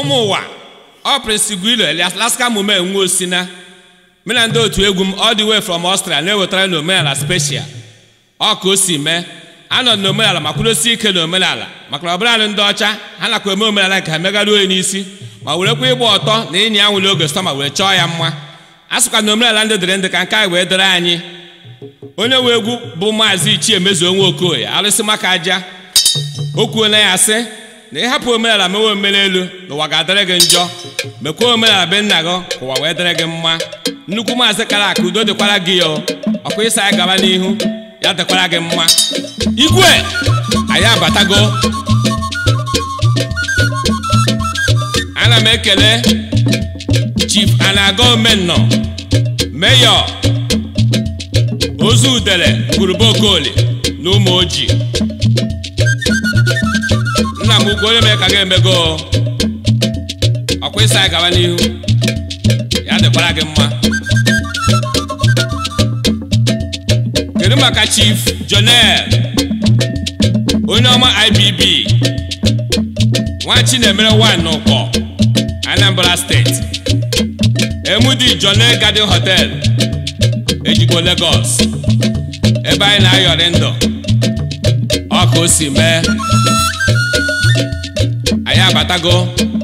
ụmụ ụwa ọ prịnsiguilo Alaska mume nwa osina mụ na ndị otu egwu m ọ wee from ọstra na-ewetara na omenala speshia ọ ka o si mee anọ na omenala ma kwudosie ike na omenala maka na ọbụla ndị ọcha ha nakwa eme omenala nke ha megara onye n'isi ma werekwa ịgba ọtọ na ịnya anwụle oge sọma wee chọọ ya mma a sịkwa na omenala ndị dịrị ndị ka nke anyị wee dịrị anyị onye nwe egwu bụ maazị ichie mezuo nwa okoye arụsị maka aja o kwuo na ya sị na hapụ omenala mewe omere elu ụwa ga-adịrị gị njọ mekwa omenala be nna gị ụwa wee dịrị gị mma nnukwu maazị kara aka udo dịkwara gị ya ọkwa ịsa ya gaba n'ihu ya dịkwara gị mma igwe anyị abatago ana m ekele chief anaga omennọ meyọ ozu udere ngurube okoli na ụmụ ojii bụkwa onye mee ka ga emego ọkwa ịsa anyị gaba n'ihu ya dịkwara gị mma kedu maka chief jonel onye ọma ibb nwachi na-emere n'ụkọ anambra steeti emudi jonel garden hotel ejikwa lagos ebe anyị na-ayọrị ndụ ọka o si mee go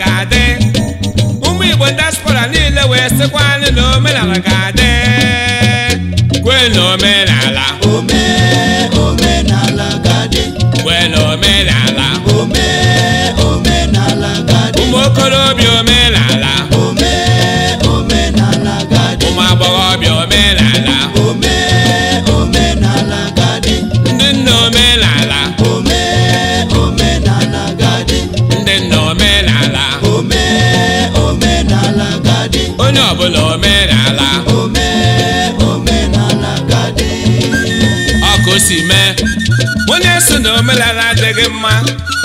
ga-adị ụmụ Igbo diaspora niile wee sịkwa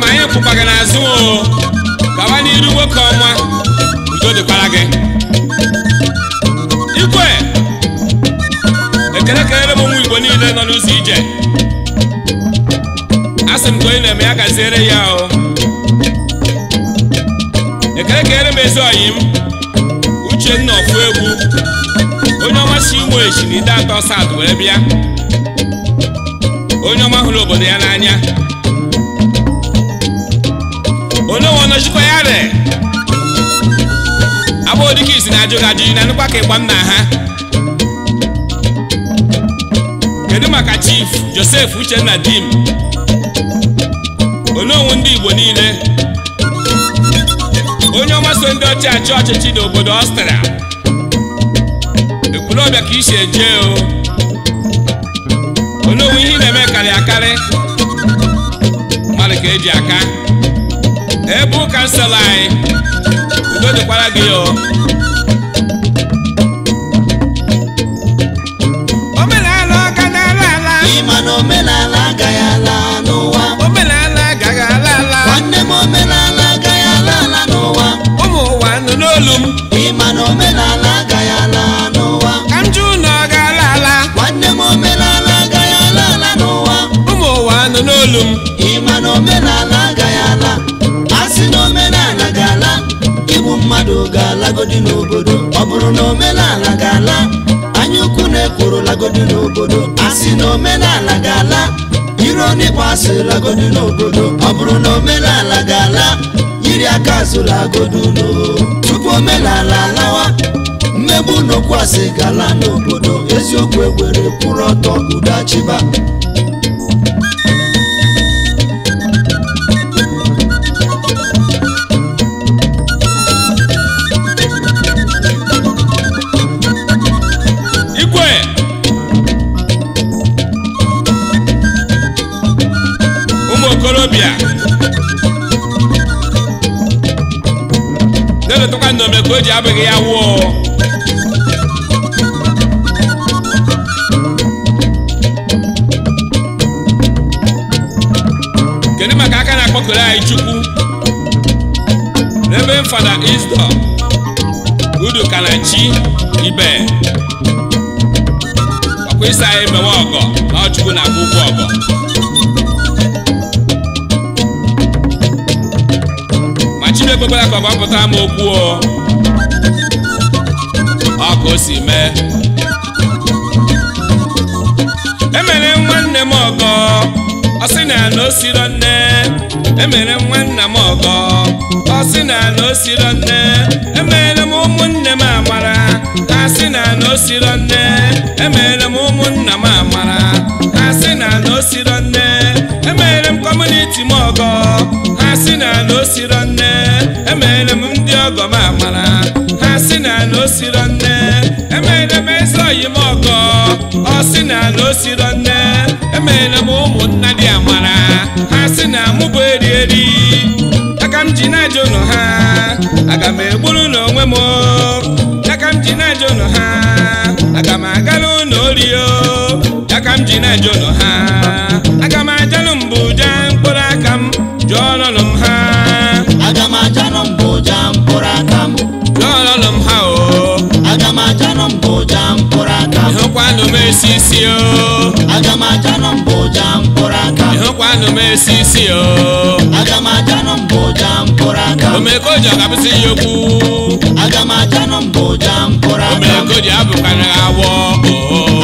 ma ya pụkwa gị n'azụ o gawa n'iru nwoke ọma udo dịkwara gị igwe ekele kelere m nwa igbo niile nọ n'ụzọ ije a sị m ka onye na-eme ya gaziere ya o ekele kelere m ezi ọyị m uchenna ọfụ egwu onye ọma si inwe echi na ide atọ sad wee bịa onye ọma hụrụ obodo ya n'anya onye nọchikwa ya re abụọ dịka isi na ajụ na nụkwa ka ịgba nna ha kedu maka chief Josef uchenna dim onyeonwu ndị igbo niile onye ọma so ndị ọchị achị ọchịchị n'obodo ọstria ọbịa ka isi eje o onyeonwu ihe na-eme karịa akarị mmadụ ka eji aka ebe ụka nsala anyị udo dịkwara gị ọ ga-alagodi n'obodo ọ bụrụ na omenala ga-ala anya ukwu na-ekworo lagodi n'obodo asị na omenala ga-ala iro n'ịkpọ asị lagodi n'obodo ọ bụrụ na omenala ga-ala yiri aka azụ lagodi ulo tupu omenala alawa mmegbu n'okwu asị ga n'obodo eziokwu ewere kwụrụ ọtọ udo achịba o ji abịghị ya wụọ kedu maka aka na-akpọkụrụ anyị chukwu n'ebe fada isdọ udu kanachi ibe ọkwa ịsa anyị mewe ọgọ na ọchukwu na-akwụ ụgwọ ọgọ e e ka ọ gbapụta m okwu ka o si mee emere nwanne m ọgọ na na o nne emere nwanna m ọgọ ọ sị na na o siro nne emere m ụmụnne m amara ha sị na na o siro nne emere m ụmụnna m amara ha sị na na o siro nne emere m kọmuniti m ọgọ ha sị na na o siro nne emere m ọ sị na na o siro nne emeela m ụmụnna dị amara ha sị na mụ bụ eri eri aka m ji na-ajụ ụlọ ha aga m egburu n'onwe m aka m ji na-ajụ ụlọ ha aga m aga n'ụlọ orio aka m ji na-ajụ ụlọ ha esisi o aga m aja mbụ ụja mkpụrụ aka ịhụkwanụ m esisi o aga m aja mbụ ụja mkpụrụ aka omekoji ọ ga-abụzi ya okwu aga m aja mbụ ụja mkpụrụ aka omekoji abụkwana awọ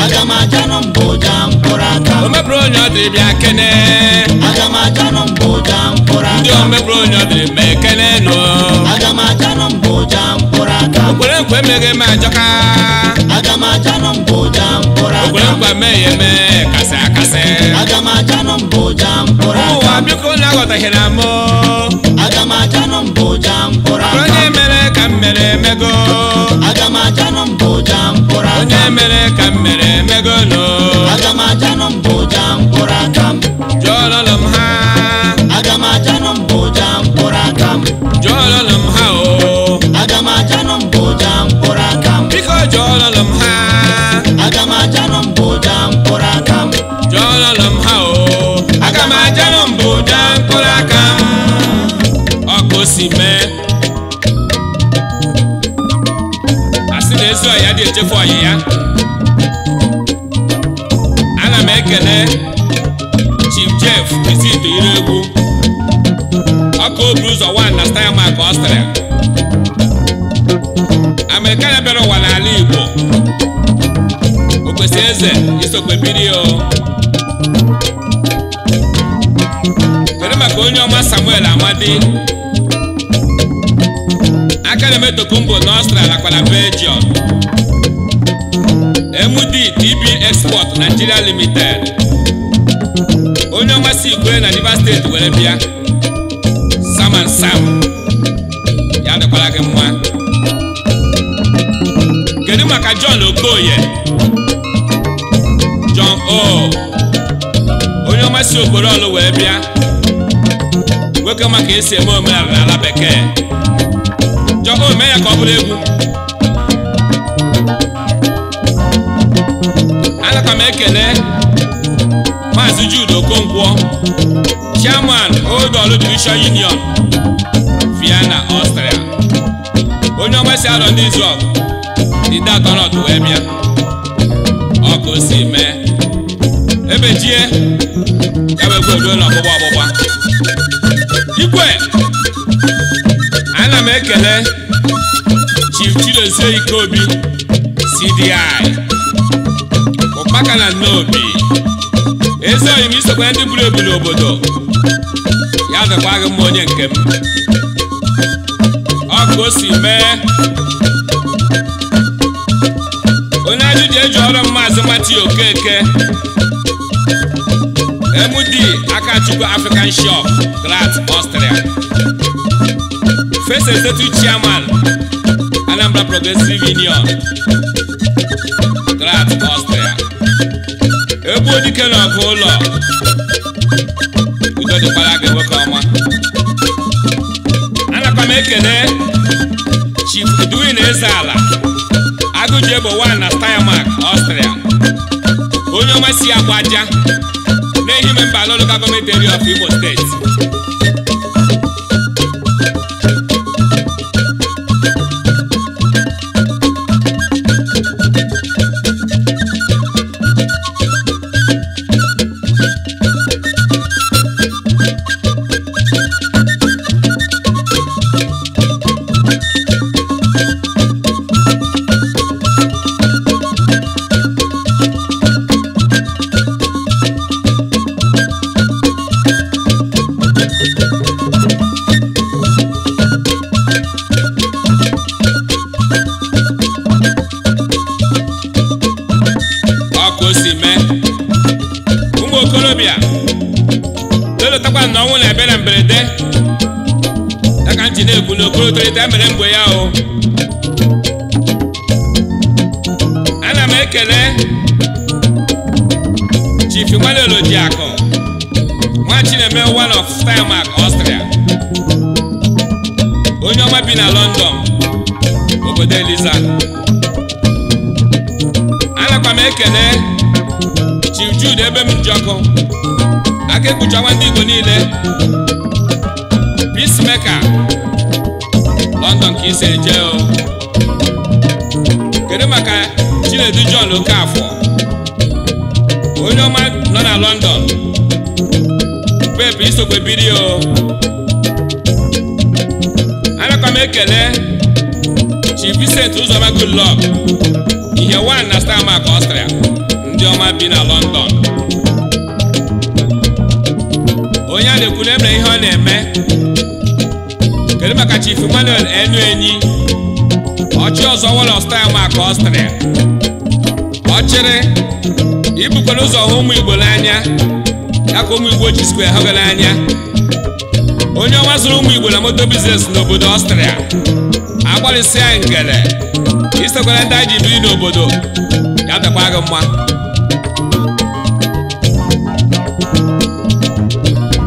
aga m aja mbụ ụja mkpụrụ aka o mepụrụ onye ọ dịrị bịa kene aga m aja mbụ ụja mkpụrụ aka ndị o mepụrụ onye ọ dịrị ma ekene nụ aga m aja mbụ ụja mkpụrụ aka o kwere nkwe emeghe m ajọka aga m ajanụ mbụ ajanụ mbụja mkpụrụ ụwa biko na aghọtaghịra oh, m aga m ajanụ mbụja mkpụrụ onye mere ka m mere emego aga m ajanụ onye mere ka m mere emego no aga m ụzọ nwa na style mark ọstrịa amerikana bịara ụwa n'ala igbo okwesị eze isokwe biri o oh. were maka onye ọma samuel amadi aka na emetokumbo na ọstrịa nakwa na belgium md tb export nigeria limited onye ọma si igwe na rivers steeti were bịa Sam Sam ya dịkwara gị mma kedu maka John Okoye John O onye ọma si obodo ọlụ wee bịa nwoke maka esi eme omenala n'ala bekee John O mee ya ka ọ bụrụ egwu anaka m ekele Jude Okonkwo, Chairman Odolu Division Union, Vienna, Austria. Onye ọma si arọ ndị Izrel, ndị atọnọdụ wee bịa. Ọ ka o si mee. Ebejie, ya bụ egwu eruo n'ọgbụgba ọgbụgba. Igwe, ana m ekele Chief Chidozie Ikobi, CDI, Ụkpaka na Nnobi. ezi m isokwa ndị buru ebu n'obodo ya vekwaghị m onye nke m ọ o si mee onye ajụ e ji eji ọrụ maazị mati okeke MD Akachukwu African Shop Grat Austria First Executive Chairman Anambra Progressive Union Graz Chukwu dike n'ọkụ ụlọ udo dịkwara gị nwoke ọma anakwa m ekele Chief Edwin ala agụji egbo wan na Steiermark Ọstrịa onye ọma si aja na-ehi memba local gọọmenti area of Imo steeti nwa bi na London obodo Eliza anakwa m ekele chijud ebe m ji ọkụ aka ekpuchakwa ndị Igbo niile peacemaker London ka isi eje o kedu maka Chinedu John Okafor onye ọma nọ na London pepe isokwe biri o m ekele Chief Vincent Uzoma Goodluck ihe wan na Starmark Austria ndị ọma bi na London onye a na-ekwu na emere ihe ọ na-eme kedu maka Chief Emmanuel enu enyi ọchị ọzọ wọlọ Starmark Austria ọchịrị ibukwana ụzọ hụ ụmụ Igbo n'anya ya ka ụmụ Igbo ji square ha anya. onye ọnwa zụrụ ụmụ igwe na moto biznes n'obodo ọstrịa agbalịsịa ngele isokwara ndị anyị ji biri n'obodo ya dịkwa gị mma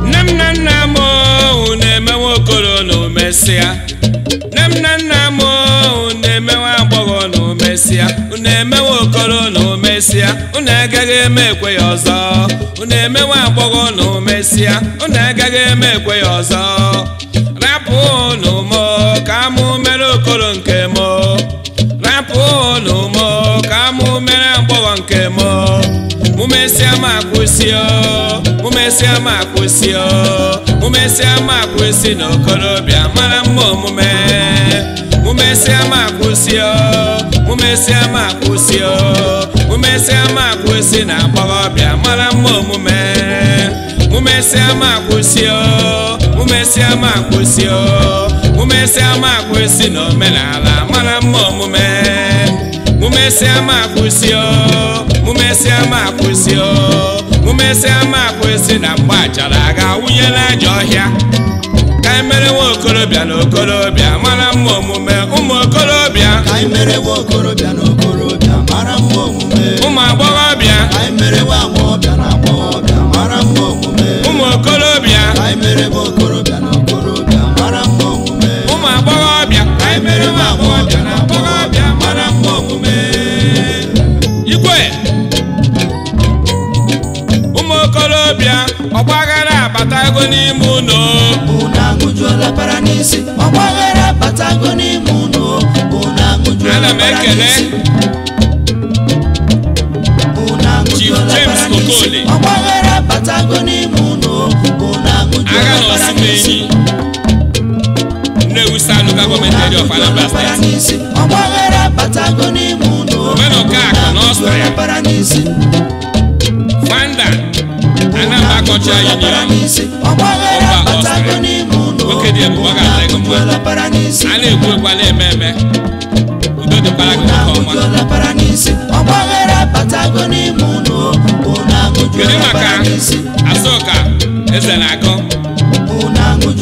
nne m nna m na oh, na nne m na nna m oh, na-eme nwa agbọghọ na omesịa na-eme mesịa unu agaghị eme ekwe ya ọzọ unu emewe agbọghọ unu mesịa unu agaghị eme ekwe ya ọzọ rapụ unu mụ ka mụ mere okoro nke mụ rapụ unu mụ ka mụ mere agbọghọ nke mụ mụ mesịa m akwụsị mụ mesịa m akwụsị mụ akwụsị na okorobịa mara mma omume mụ mesịa m akwụsị mụ mesịa m mụmesịa ma akwụsị na agbọghọbịa mara mma omume mụmesịa ma akwụsị o mụmesịa ma akwụsị o mụmesịa ma akwụsị na omenala mara mma omume mụmesịa ma akwụsị o mụmesịa ma akwụsị o mụmesịa ma akwụsị na mgbe achara aga wụnyela aja ọhịa ka anyị mere nwa okorobịa na okorobịa mara mma omume ụmụ okorobịa ka anyị mere nwa okorobịa na okorobịa ụmụ agbọghọbịa ụmụ okorobịa ụmụ mma igwe ụmụ okorobịa ọgbaghara abatago n'ime ụlọ unu abatago n'ime ụlọ ana m ekele n'enyi Nnewi Sanu ka gọọmenti eri of Anambra steeti omenụ ka akụ na ọsọ ya fanda Anambra kọcha union ọba ọsọ ya nwoke dị ebube ọ ga-adị mma a na-ekwu a na-eme eme udo dịkwara gị nke ọma kedu maka asọka eze na-agụ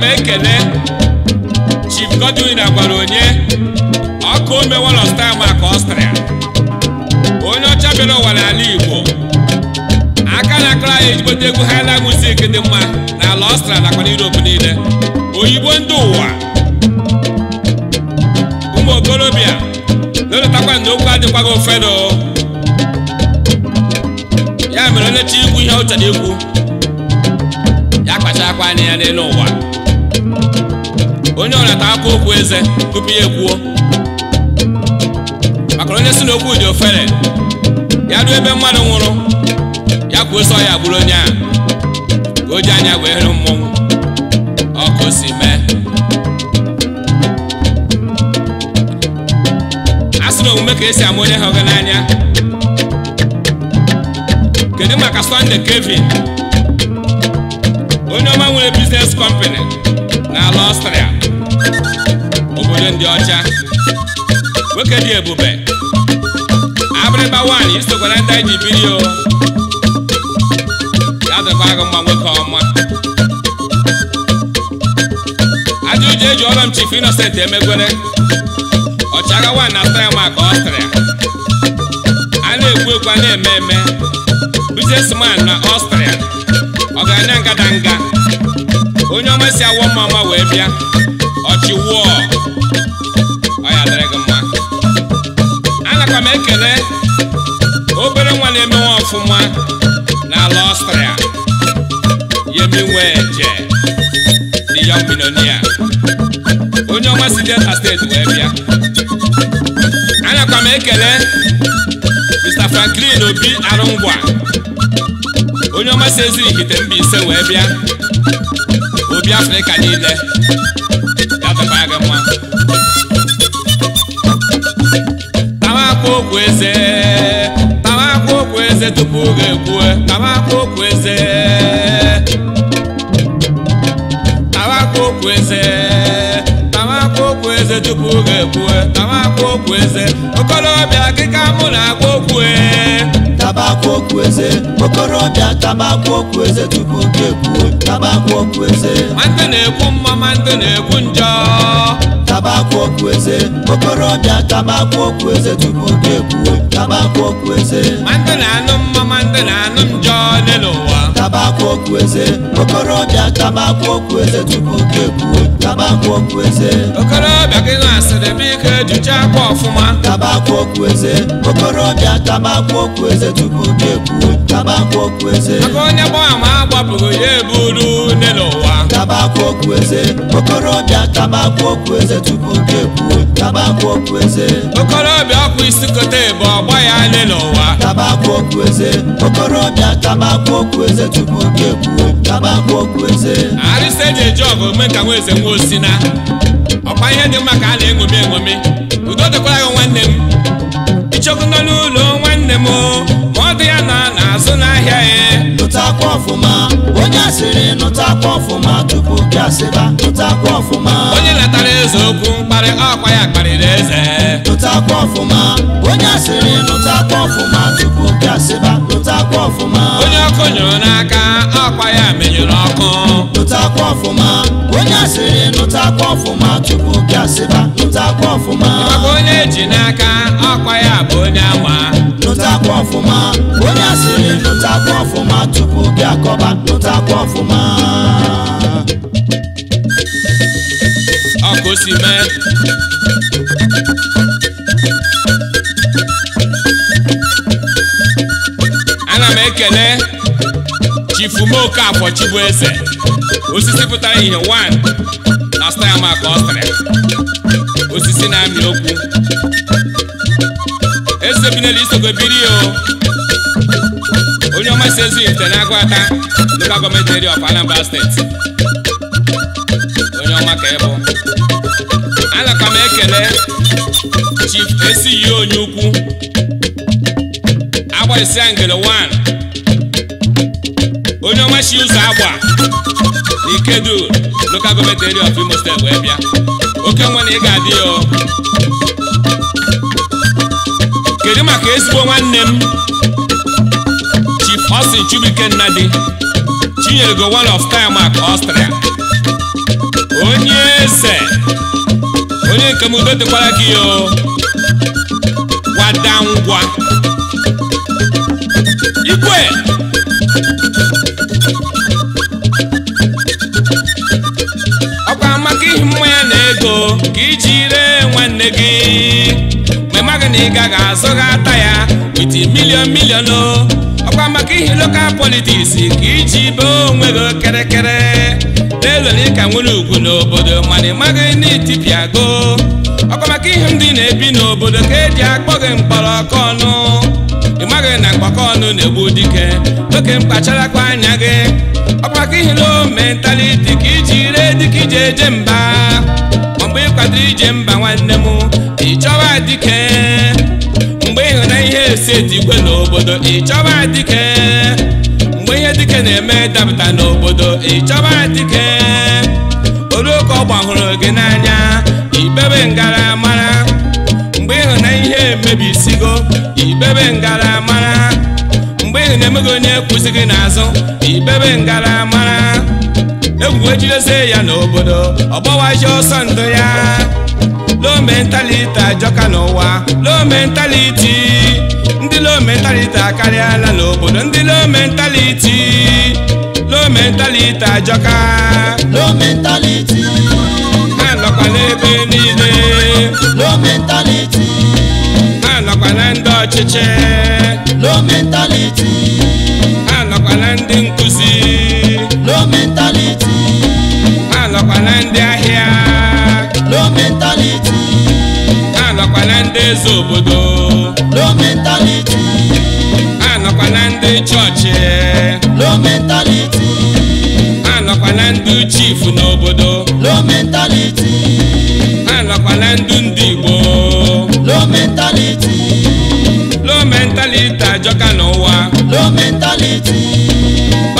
m ekele Chief Godwin agwara onye ọkụ omewolo sta maka Ọstrịa onye ọcha bịara ụwa n'ala Igbo aka na akara anyị ejigote egwu highland music dị mma n'ala Ọstrịa nakwa n'Europe niile oyibo ndị ụwa ụmụ okorobịa na-eletakwa na okwu adịkwago fedo ya mere onyechi chi ihe ọ chọrọ ikwu ya kpachara akwa anya ya n'elu ụwa onye ọrịata akwa okwu eze tupu ya ekwuo maka onye si n'okwu dị ofere ya ruo ebe mmadụ nwụrụ ya kwuo sọ ya bụrụ onye a ka o ji anya wee hịrụ mmọnwụ ọkụ si mee a sị na omume ka esi ama onye ha hụghị n'anya kedu maka Sọnde Kevin onye ọma nwere biznes kọmpani na ala Ọstrịa oche ndị ọcha nwoke dị ebube abịrịba nwaanyị isokwara ndị anyị ji biri o ya dịkwa gị mma nwoke ọma ajụjụ eji ọrụ m chifu Innocent emegwere ọchagha nwaanyị na-ata ya maka ọstrịa a na-ekwu ekwu a na-eme eme businessman na ọstrịa ọgaranya ngadanga onye ọma si awọ mma ọma wee bịa ọchịwụọ na-adịrị gị mma anaka m ekele obere nwa na nwa ọfụma n'ala ọstrịa yemi weje the young millionaire onye ọma si delta steeti wee bịa anaka m ekele mr franklin obi arụngwa onye ọma si ezu ihite mba ise wee bịa obi afrịka niile ya dịbaa gị mma okwu eze tamakwa okwu eze tupu oge ekwue okoro okwu eze tamakwa okorobịa akịka mụ na-agwa okwu eze okorobịa okwu tupu oge ekwue na-ekwu mma nwantị na-ekwu njọ kabakwa okwu eze okorobịa kabakwa okwu eze tupu gị ekwuwe kabakwa okwu eze mandị na-anụ mma mandị na-anụ njọ n'ụwa kabakwa okwu eze okorobịa kabakwa okwu eze tupu gị ekwuwe kabakwa okwu eze okorobịa gị na-asịrị m ike ejucha akwa ọfụma kabakwa okwu eze okorobịa kabakwa okwu eze tupu gị ekwuwe kabakwa okwu eze onye gbọọ ama agbapụrụ ya uru n'ụwa tabakwa okwu eze okorobịa tabakwa okwu eze tupu oge kwuo tabakwa okwu eze okorobịa ọkwa isi kote bụ ọgba ya ale n'ụwa tabakwa okwu eze okorobịa tabakwa okwu eze tupu oge kwuo tabakwa okwu eze arịsa eji eji ọgụ ome ka nwa eze nwa osina ọkwa ihe dị mma ka a na-eṅomi eṅomi udo dịkwara gị nwanne m ichekwu n'ụlọ nwanne m ndị ya na na-azụ n'ahịa ya e. nụtakwa ọfụma onye asịrị nụtakwa ọfụma tupu gị asịba nụtakwa ọfụma onye natara eze okwu mkparị ọkwa ya kparịrị eze nụtakwa ọfụma onye asịrị nụtakwa ọfụma tupu gị asịba nụtakwa ọfụma onye ọkụ nyụrụ n'aka ọkwa ya menyụrụ ọkụ nụtakwa ọfụma onye asịrị nụtakwa ọfụma tupu gị asịba nụtakwa ọfụma maka onye eji n'aka ọkwa ya bụ onye ama ta kọ́ fún ma ó ní àṣírí ló ta kọ́ fún ma túkú kí ana m ekele chifumoke afọ chibueze osisi pụtara ihe one last time aka ọ sịrị osisi na-amị okwu chinelu na biri o onye ọma si ezi na agwata local gọọmenti area of Anambra steeti onye ọma ka ị bụ anaka m ekele chief onye ukwu agba isi angele 1 onye ọma si ụzọ agba ikedu local of Imo steeti wee bịa oke na ị ga-adị nke ezigbo nwanne m Chief Austin Chibuike Nnadi Chinyerego one of Kayamak Austria onye eze onye nke m udo dịkwara gị o wada ngwa igwe ọkwa maka ihi mmanya na ego ka iji ree nwanne gị amaghị na ị gaghị azụ gha ata ya witi milion milion o oh. ọkwa maka ihe lokal politiks ka iji bee onwe gị kịrịkịrị na-elwere ịka nwere ugwu n'obodo mana ị maghị na itipiago oh. ọkwa maka ihe ndị na-ebi n'obodo ka eji akpọ gị mkpọrọ ọkụ ọnụ ị maghị na mgbakọ ọnụ na-egbu dike oke mkpacharakwa anya gị ọkwa maka ihe lo mentaliti ka iji ree dịka ije eje mba mgbe ị ije mba nwanne m ịchọwa dike mgbe ịhụna ihe esi eti n'obodo ịchọba dike mgbe ihe dike na-eme dapụta n'obodo ịchọba olu oluoke ọgba hụrụ gị n'anya ibebe ngara mara mgbe ịhụna ihe emebisigo ibebe ngara mara mgbe ịhụna emeghị onye kwụsị gị n'azụ ibebe ngara mara egwu ejidesi ya n'obodo ọgbawa ji ọsọ ndụ ya low mentality ajọka n'ụwa low mentality ndị low mentality akarịala n'obodo ndị low mentality low mentality ajọka low mentality ha nọkwa n'ebe niile mentality ha nọkwa na ndị ọchịchị low mentality ndị eze obodo low mentality anọkwa na ndị chọọchị low mentality anọkwa na ndị chief n'obodo low mentality anọkwa na ndị ndị igbo low mentality low mentality ajọka n'ụwa low mentality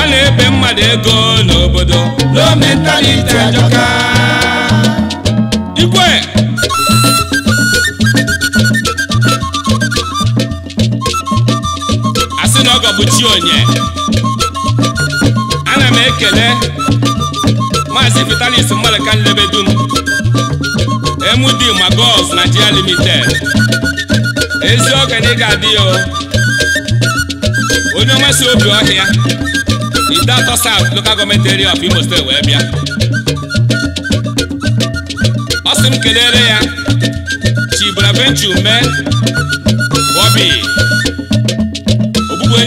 ọ na-ebe mmadụ ego n'obodo low mentality ajọka ikwe Ọ bụ Chionye ana m ekele maazị Vitalis dum Nlebedum MD na Nigeria Limited ezi okenye ga-adị ya onye ọma si obi ọhịa ide atọ South Local Government Area of Imo wee bịa ọ sị m kelere ya Chibraventure mee Bobby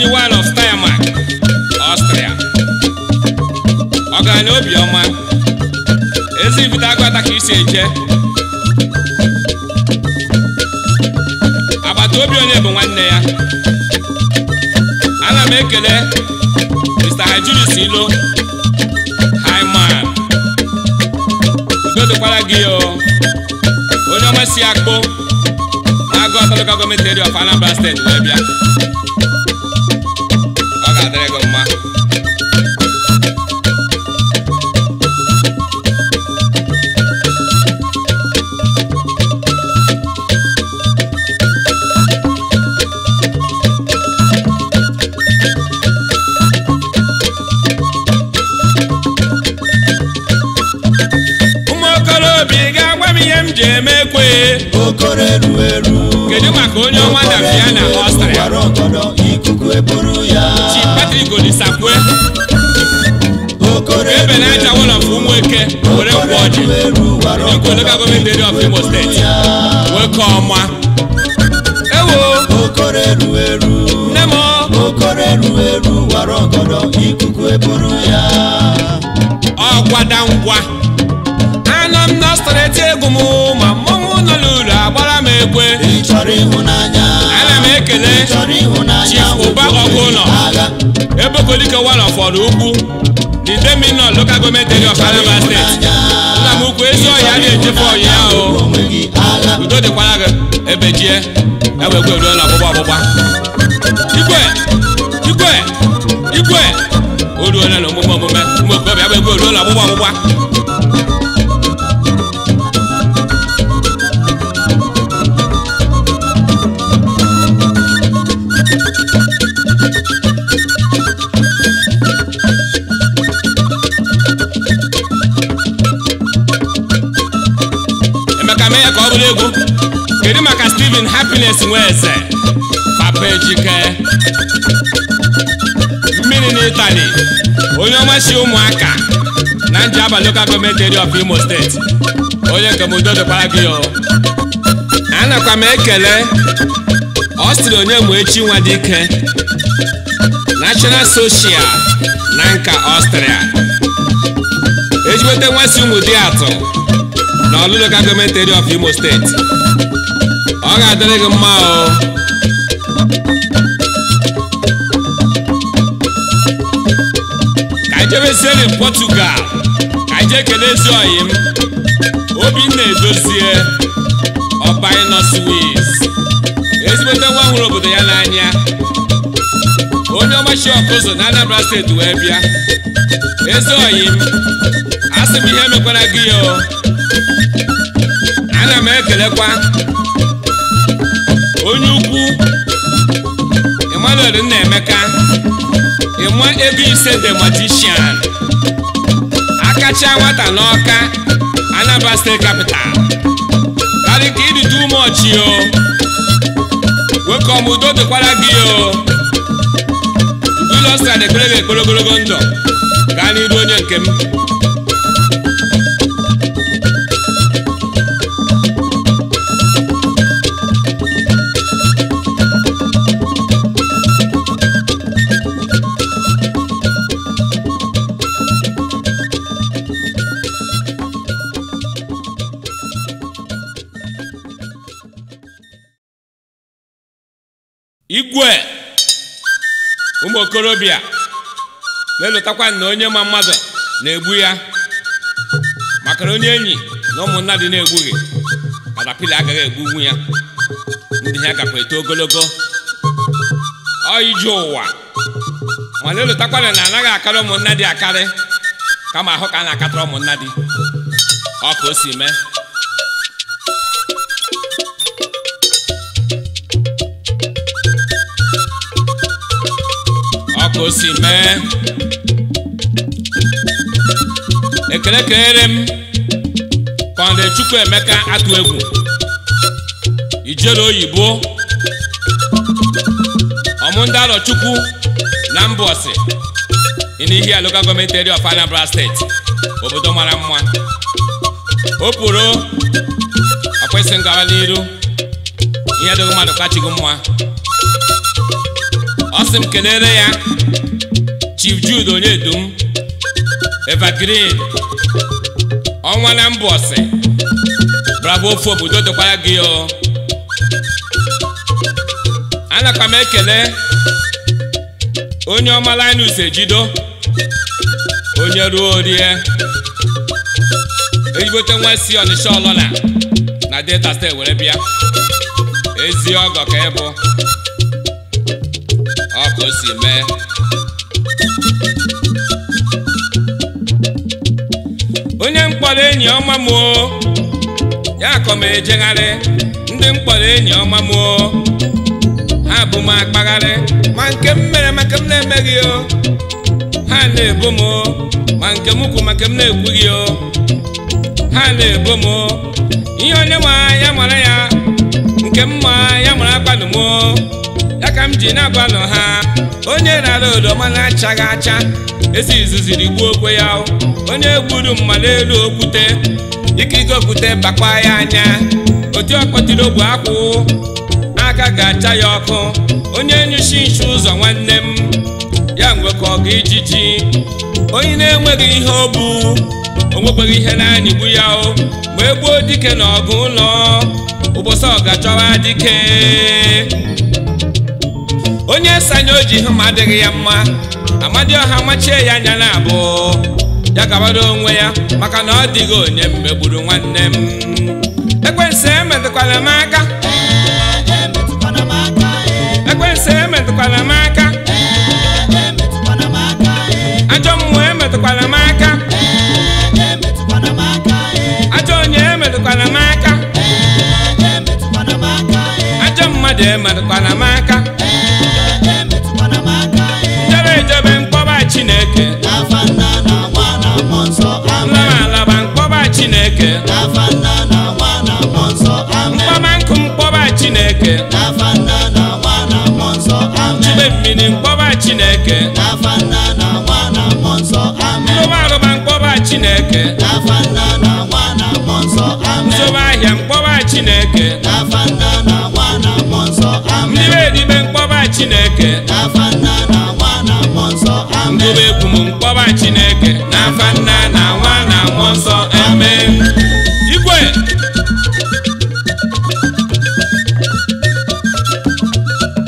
one of Steiermark, Austria ọgaranya obiọma ezi ibudo agwata ka isi eje agbata obi onye bụ nwanne ya ana m ekele Mr. Hajulis Ilo Haiman udo dịkwara gị onye ọma si akpụ na-agụ Local Government Area of Anambra State wee bịa okoro eru eru kedu maka onye ọnwa dabia na ọstrịa ikuku eburu ya chi patrik olisakwe ebe na aja wọlọ fụ ụmụ eke were kwụ ọjị ekwu local government area of imo steeti wee kọ ọma ewo nne m okoro eru eru wara ọgọdọ ikuku eburu ya ọgwada ngwa ekwe ana m ekele chief ụba ọgụ ụlọ ebokolike walọ fọrọ ugwu didemino local government area of Anambra State nna m ukwu ezi ọhịa na-echefe ọhịa ahụ udo dịkwara gị ebe jie ewegwe ruola ọgbụgba ọgbụgba igwe igwe igwe o na omume omume ụmụ okorobịa ewegwe ruola ọgbụgba ọgbụgba happiness nwe eze papa ejike mmiri na itali onye ọmachi ụmụaka na nji abalị local gọọmentị of imo steeti onye nke m udodobara gị anakwa m ekele ọ onye mụ nwa dike national soshial na nka ọstrịa ejiweta nwasị ụmụ di atọ na ọlụ local of imo steeti ọ ga-adịrị gị mma o ka anyị jebesiere Portugal ka anyị jee kelee ezi ọyị m Obinna Edozie ọba ịnọ ezigbote nwa hụrụ obodo ya n'anya onye ọmachi ọkụzụ na Anambra steeti wee bịa ezi ọyị m asị m ihe mekwara gị ya o ana m ekelekwa onye ukwu nna emeka ịma ego ise the akacha nwata n'ọka Anambra kapịtal Capital ka ịdị too much o welcome udo dịkwara gị o ulosta na ekpere gị ekpere ogologo ndụ gaa n'iru onye nke m okorobịa na-elotakwa na onye ma mmadụ na-egbu ya maka onye enyi na ụmụnna dị na-egbughị katapila agaghị egbugbu ya ndị ha gakwa eto ogologo ọ ije ụwa mana elotakwana na anaghị akarị ụmụnna dị akarị kama ahụ ka a na-akatara ụmụnna dị ọ ka o si mee ọka o si ekele kelere m kọnde chukwu emeka atụ egwu ijele oyibo ọmụndalọ chukwu na mbọsị Inihia local gọọmenti area of Anambra steeti obodo mara mma o pụrụ akwesị n'iru ihe dịghị mmadụ kachighị mma ọ sị m kelere ya Chief Jude Onyedum Evergreen ọnwa na Mbọsị bravo ofu obodo dịkwara gị o anakwa m ekele onye ọma Linus Ejido onye ruo rie ejibote nwa si Ọnịsha ọlọla na Delta steeti were bịa ezi ọgọ ka ebu. o si mee onye mkpọrọ enyi ọma m ya kọ m ejegharị ndị mkpọrọ enyi ọma m ha bụ m akpagharị ma nke m mere maka m na-emeghị o ha na-ebo m ma nke m maka m na-ekwughị o ha na-ebo m ihe onye ma ya mara ya nke m ma ya mara akpanụ m ya ka m ji na-agbanụ ha onye rara odoma na-achaghị acha esi izuziri gbuo okwe ya onye gburu mma elu okwute ike okwute bakwa ya anya Otu ọkpọtiri ogbu akwụ aka ga-acha ya ọkụ onye nyuchi nchi ụzọ nwanne m ya mgbe ka ọ ga ijiji onye na-enweghị ihe o bu o ihe na-anyịgbu ya o dike na ọgụ ụlọ ụbọchị ọgachọwa dike onye sanya oji hụ ma adịghị ya mma ọha machie ya anya na abụọ ya gabara onwe ya maka na ọ dịghị onye megburu nwanne m ekwensu emetụkwala m aka ekwensu emetụkwala m aka ajọ mmụọ emetụkwala m aka ajọ onye emetụkwala m aka ajọ mmadụ emetụkwala m aka Chineke afa nna na mkpọba Chineke na nwa na nkụ mkpọba Chineke na nwa na mmụọ nsọ amen mmiri mkpọba Chineke afa na nwa na mkpọba Chineke afa na nwa na ahịa mkpọba Chineke afa na nwa na mkpọba Chineke m mkpọba chineke n'afa nna na nwa na nwa nsọ eme igwe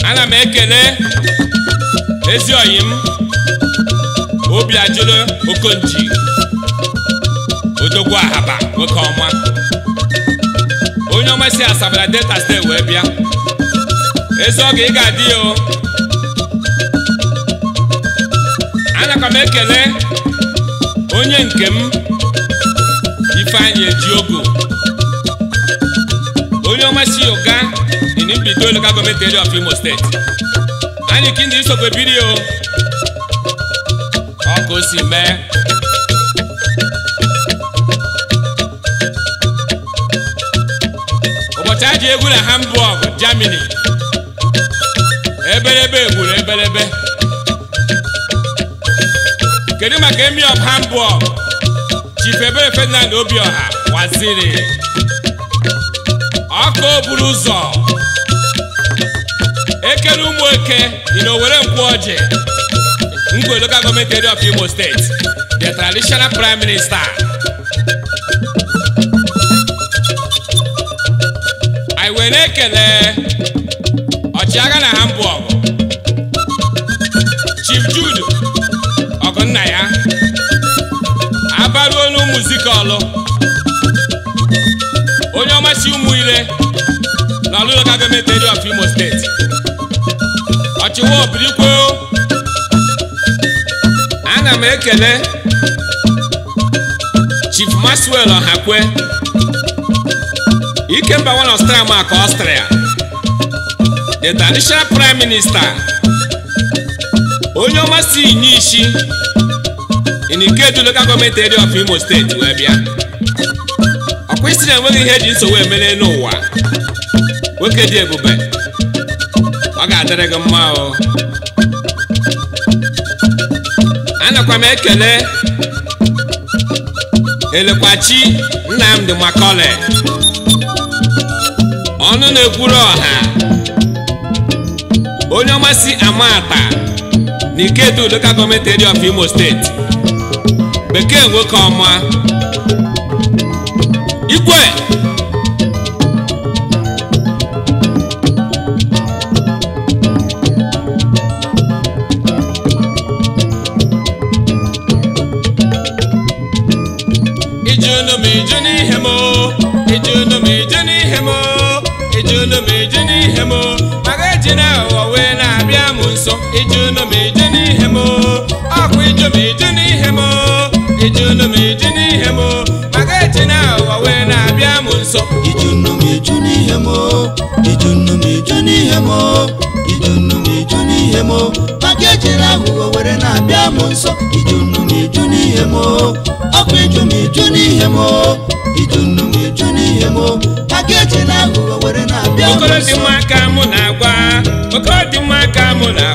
ana m ekele ezi oyi m obi ajụlụ okonji odogwu ahaba nwoke ọma onye ọma si asabala delta steeti wee bịa ezi oge ị ga-adị ya o ana m ekele onye nke m ifeanyị ejiogo onye ọma si ụga inimbido local of Imo steeti anyị kindi nsogbu ebiri o ọ si mee ụbọchị aji egwu na Hamburg Germany eberebe gburu eberebe kedu maka emi of Hamburg Chief Ebere Ferdinand Obiọha waziri ọka buru ụzọ ekele ụmụ eke dị na Owerri ọjị Ngwe Local gọọmenti of Imo steeti the traditional prime minister anyị were ekele ọchịagha na Hamburg ụmụ Nzikọlụ onye ọmasị ụmụ ire na Olu Local Government Area of Imo State ọchịwa obirikwe ana m ekele Chief Maxwell Ọhakwe Ikemba one of Stramaka Austria the traditional prime minister onye ọmasị inye isi in Ikeju gọọmenti area of Imo steeti wee bịa ọkwa isi na enweghị ihe eji nsogbu emere n'ụwa nwoke dị ebube ọ ga-adịrị gị mma o anakwa m ekele elekwachi nna m Nnamdi Makole ọnụ na-ekwuru ọha onye ọmasị amata na Ikedu local gọọmenti of Imo steeti bekee nwoke ọma igwe ijunu mi iju n'ihe m ijunu m iju n'ihe m ijunu na ụwa wee na-abịa m nso ijunu m iju nnụnụ m iju n'ihe m maka echi na ụwa wee na-abịa m nso ijunu nnụnụ iju n'ihe m ijunu n'ihe m ijunu iju n'ihe na were na-abịa m nso nnụnụ m iju n'ihe m ọkụ iju m iju n'ihe m iju na ụwa were na-abịa m nso ka mụ na-agwa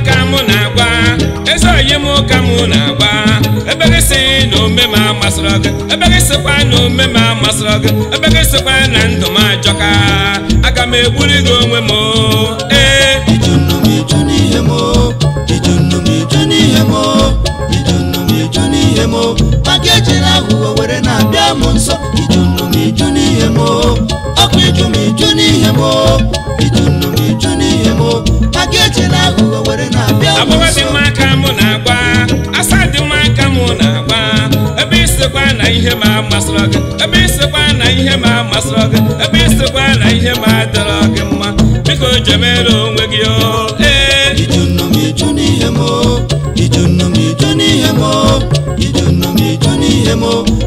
masịrị gị ebe gị sikwa na omeme amasịrị gị ebe gị sikwa na ndụ m ajọka aga m egburi gị onwe m oh, ee eh. oh. oh. maka ejere na m iju n'ihe m iju n'ihe m n'ihe m na isekwa na ihe ma amasịrọ gị ebe isekwa na ihe ma amasịrọ gị ebe isekwa na ihe ma adịrọ gị mma biko jemere onwe gị o ee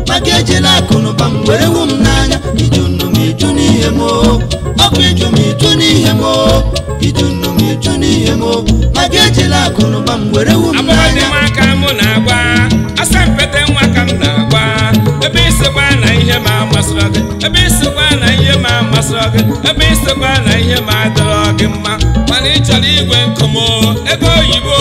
maka na m were wu m n'anya m were wu masịrị gị ebe na ihe ma masịrị gị ebe isikwa na ihe ma adịrọ gị mma mana ị chọrọ igwe nkụmo ego oyibo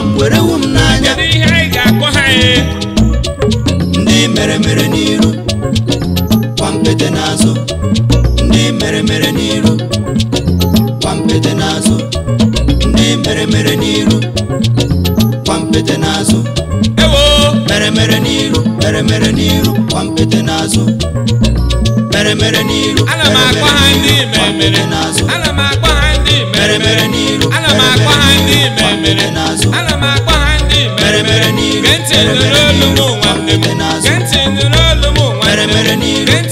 m were wu m n'anya n'ihe m ọkụ iju m iju n'ihe e? mere mere n'iru kwampeje n'azụ ndị mere mere n'iru kwampeje n'azụ ndị mere mere n'iru kwampeje n'azụ mere mere n'iru mere mere n'iru kwampeje n'azụ mere mere n'iru kwampeje n'azụ mere mere n'iru kwampeje n'azụ mere mere n'iru kwampeje n'azụ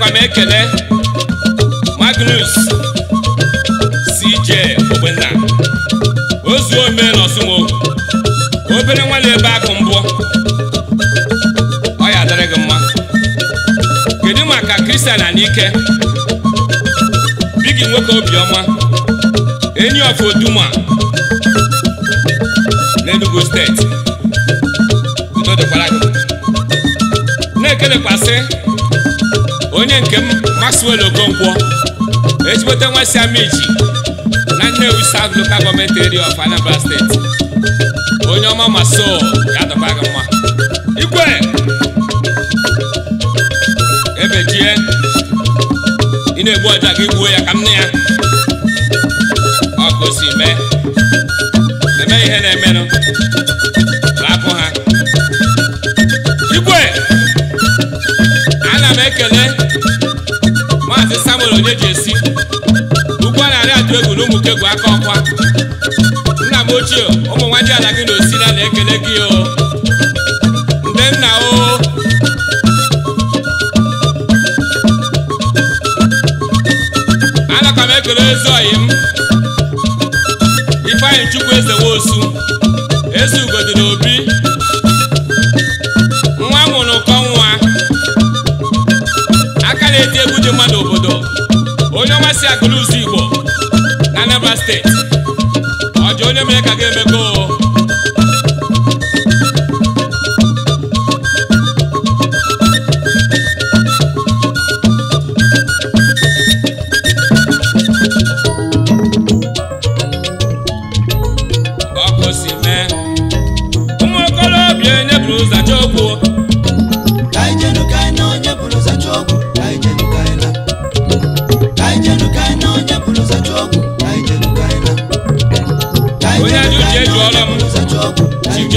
na m ekele Magnus CJ Ogbenna ozu ome na Osumo obere nwa na-ebe akụ mbụ ọ ya dịrị gị mma kedu maka Kristian Anike bi gị nwoke obiọma enyi of Oduma Enugu steeti udo dịkwara gị na-ekelekwasị nke m Maxwell ezigbo ejibote nwesiamiji na Nnewi South Local Government Area of Anambra State onye ọma maso ya dọba gị mma igwe ebejie ị na-egbu ọja gị gbuo ya ka m na ya eji esi ugbu a na-arị adụ egwu na ụmụke bụ aka ọkwa nna m ochie ụmụ nwa ji ala gị na osila na-ekele gị o ndị nna o anaka m ekele ezi ọyị m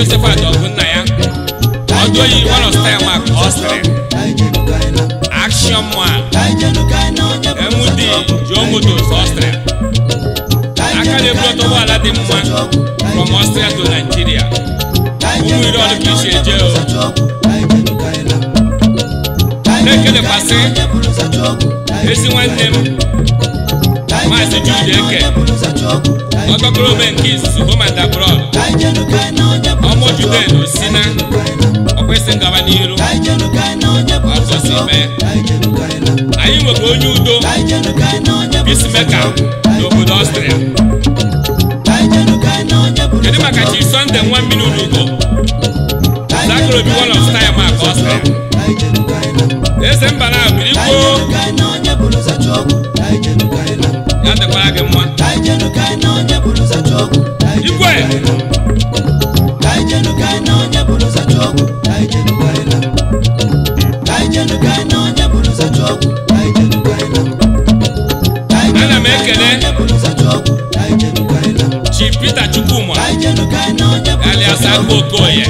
Josephat Ogunna ya ọdụ oyi one of style mark Austin Action Man MD Joe Motors Austin aka na-eburu ọtọ ụgbọala dị mma from Austria to Nigeria ụmụ iri ọdụ ka isi eje o na-ekelekwasị ezi nwanne m maazị Jude Eke ọtọkụrụ ome nke izuzu homan abroad ọmụ juden si na ọkwesị ngaba n'iru ọsọsọ ime anyị nwere onye udo peacemaker n'obodo ọstrịa kedu maka chi sọnde nwa mmiri unugo zakụrụ obi wọn of maka mark ọstrịa eze mba na abirikwo ya mekwara gị mma igwe ana m ekele chi Peter Chukwuma alias Okoye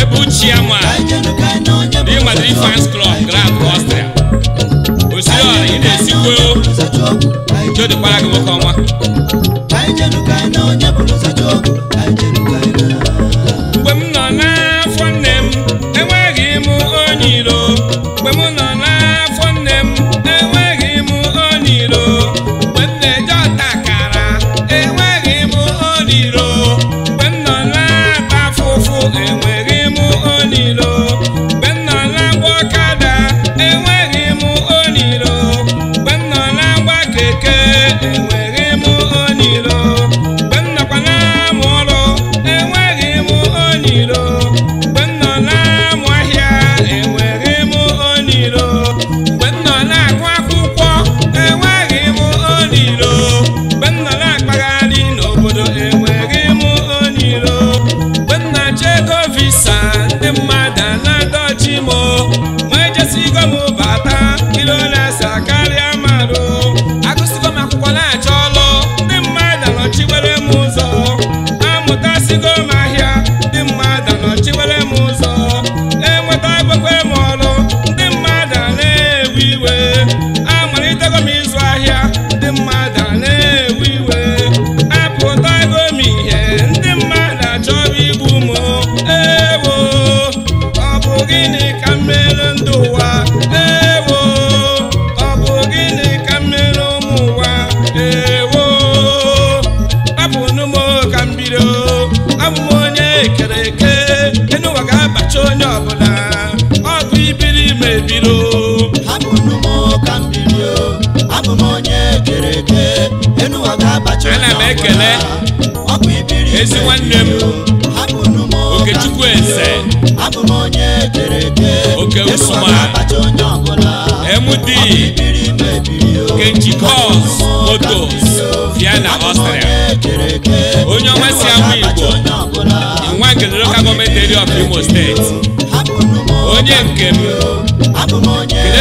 ebu chiama di Madrid fans club Grand Austria ị na-esikwe jodikpara gị nwoke ọnwa enwe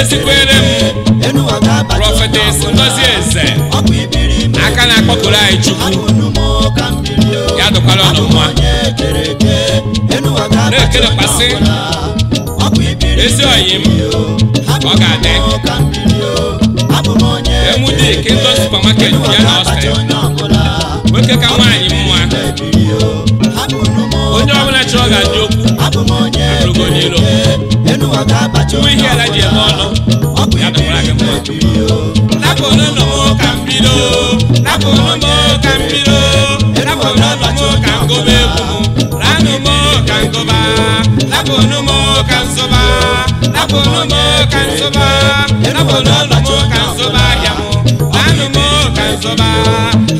esikwere m prọfetes ngozi eze aka na-akpọkuru anyị chukwu ya dụkwara ọnụ mma na-ekelepasị ezi oyi m ọ ga-adị emude ike ndọ supamaket ya na ọstel nwoke ka nwaanyị mma onye ọbụla chọrọ ga-adị okwu abụrụgo n'ilo tuwe hịara ji eme ọnụ ọ bụ ya dọkwara gị mma napụ n'ụlọ m ka m bido napụ n'ụlọ m ka m bido napụ n'ụlọ m ka m goba egwu m ranụ m ka m goba napụ n'ụlọ m ka m zoba napụ n'ụlọ m ka m zoba napụ n'ụlọ m ka m zoba ahịa m ranụ m ka m zoba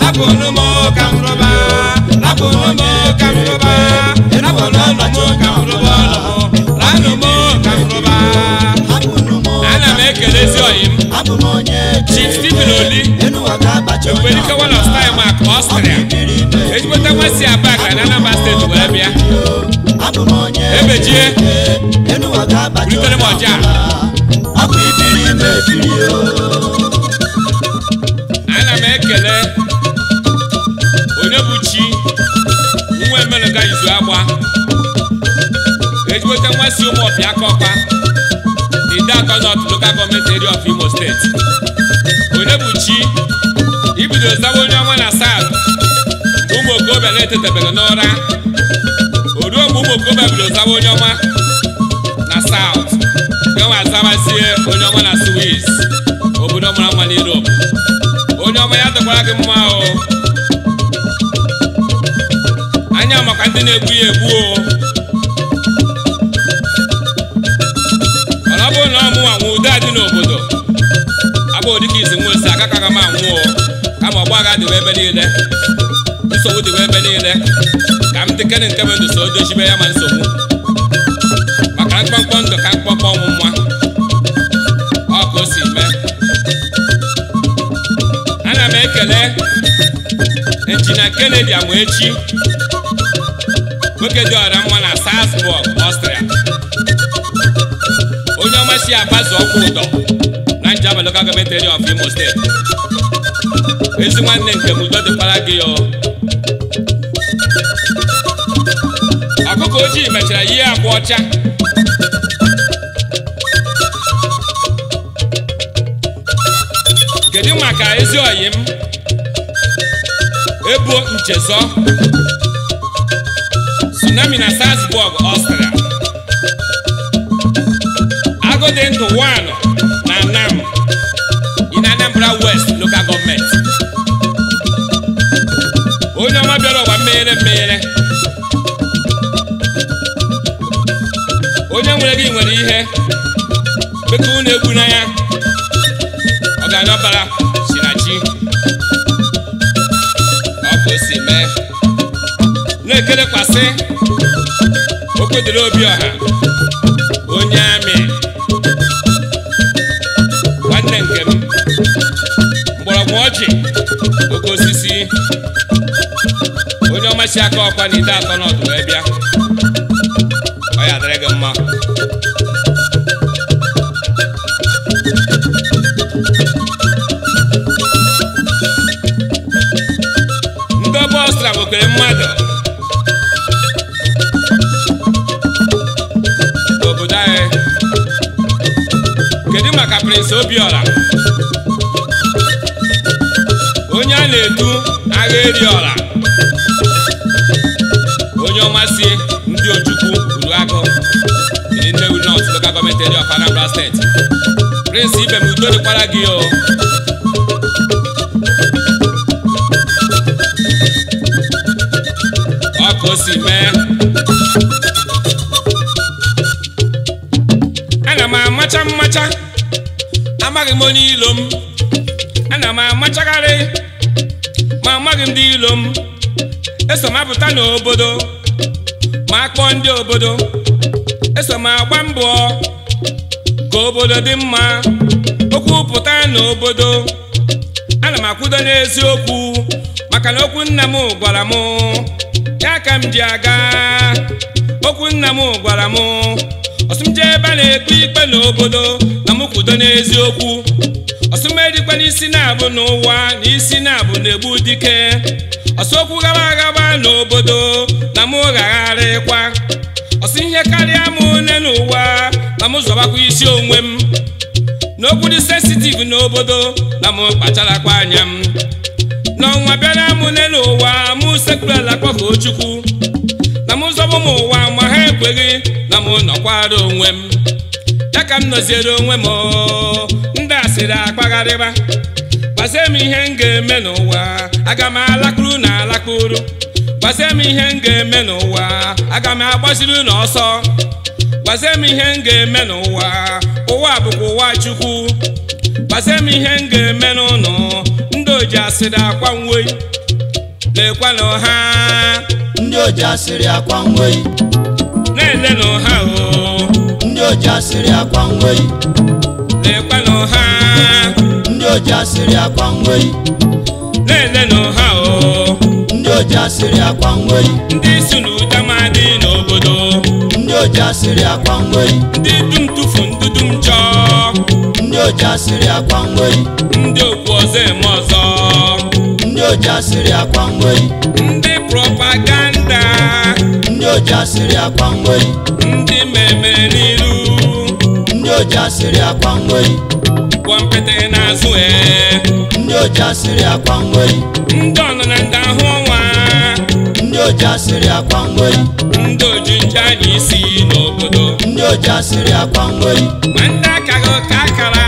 napụ n'ụlọ m ka m roba napụ n'ụlọ m ka m roba napụ n'ụlọ m ka m roba ọlọ m abụm onye ekperikewal of time ak ọstrịa ejikọta nwasị aba ka na anambra steeti wee bịa ebejie bulitere m ọja ana m ekele onye bụ chi nwa emenụga izu agba ejikọta nwasị ụmụ ọbịa kọkpa Idaako North Local Government Area of Imo State Onyebuchi ibido zawa onye ọnwa na South mgbe ụmụ okorobịa tete etetabere n'ụra o ruo mgbe ụmụ okorobịa bido zawa onye ọnwa na South gawa azawazie onye ọnwa na Swiss obodo mara mma n'Europe onye ọma ya dịkwara gị mma o anya makwa ndị na-egbu ya egbu o n'obodo abụọ dịka izi nwosi agakaghị m anwụọ kama ọgba agha dịwa ebe niile nsogbu dịwa ebe niile ka m dịkere nke bụ so dochibe ya ma nsogbu maka mkpọmkpọ ndụ ka mkpọmkpọ ọnwụ nwa ọ ka si mee ana m ekele injinia Kennedy Amuechi nwoke dị ọra mma na Salzburg Ọstrịa Ichie Agbazu Ọkwụụdọ na Njaba Local Government Area of Imo State ezi nwanne nke m udo dịkwara gị ọkụkọ ojii mechara ihe agba ọcha kedu maka ezi oyi m ebuo nchezọ tsunami na Salzburg Austria Igwe dị ndụ one na nam in Anambra West local gọọmenti onye ọma bịara ọgba mmeghere mmeghere onye nwere gị nwere ihe beka ụlọ egbu na ya ọganabara si na chi ọ bụ si mee na-ekerekwasị okwedịrị obi ọha si aka ọkwa na ide atọ n'ọdụ wee bịa ọ ya dịrị gị mma ndị bọstra bụkere mmadụ obodo anyị kedu maka Prince Obiora onye a na-edu agha eri ọra udo dịkwara gị ọ ka ana m amacha mmacha amaghị m ilo m ana m amachagharị ma amaghị m ndị ilo m eso m apụta n'obodo ma akpọọ ndị obodo eso m agba mbọ ka obodo dị mma pụta n'obodo ana m akwudo n'eziokwu maka na okwu nna m gwara m ya ka m ji aga okwu nna m gwara m ọsụm jee ebe a na-ekpe ikpe n'obodo na m kwudo n'eziokwu ọsụm edikwa n'isi na-abụ n'ụwa na isi na-abụ na-egbu dike ọsụ okwu gaba agaba n'obodo na m ghagharịkwa ọsụ ihe karịa m nne n'ụwa na m zọbakwa isi onwe m n'okwu dị sensitive n'obodo na m kwa anya m n'ọnwa bịara m n'elu ụwa mụ sekwurala kpọkọ chukwu na m zọbụ m ụwa ma ha ekweghị na m nọkwara onwe m ya ka m nọziere onwe m ndị asịrị akpagharịba gbazie m ihe m ga-eme n'ụwa aga m alakpuru na alakpuru gbazie m ihe m ga-eme n'ụwa aga m agbaziri n'ọsọ gwazie m ihe m ga-eme n'ụwa ụwa bụkwa ụwa chukwu gwazie m ihe m ga-eme n'ụlọ ndị oji asịrị akwa nwei lekwana ọha ndị oji asịrị akwa nwei na-ele n'ọha o ndị oji asịrị akwa nwei lekwana ọha ndị oji asịrị akwa nwei na-ele n'ọha o ndị oji asịrị akwa nwei ndị si n'ụda n'obodo oji asịrị akwa ngweri ndị dum tufu ndudu m chọọ ndị oji asịrị akwa ngweri ndị okwu ọzọ eme ọzọ ndị oji asịrị akwa ngweri ndị propaganda ndị oji asịrị akwa ngweri ndị mmemme n'iru ndị oji asịrị akwa ngweri gwampete n'azụ ee ndị oji asịrị akwa ngweri ndị ọnọ na ndị ahụ ọnwa ndị oji asịrị akwa nweri ndị oji nje a na-esi n'obodo ndị oji asịrị akwa nweri ma ndị akaghị ụka akara